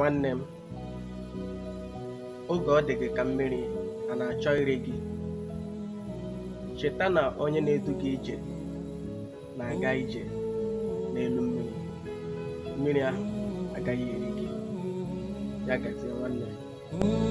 Nwanne m, oge ọ dị gị ka mmiri a na-achọ ire gị, cheta na onye na-edu gị ije na-aga ije n'elu mmiri, mmiri ahụ agaghị eri gị. Ya gazie nwanne m.